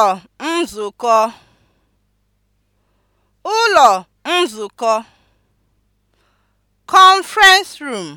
ụlọ nzukọ ụlọ nzukọ (conference room)